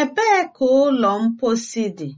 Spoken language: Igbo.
Ebee ka ụlọ mposi dị?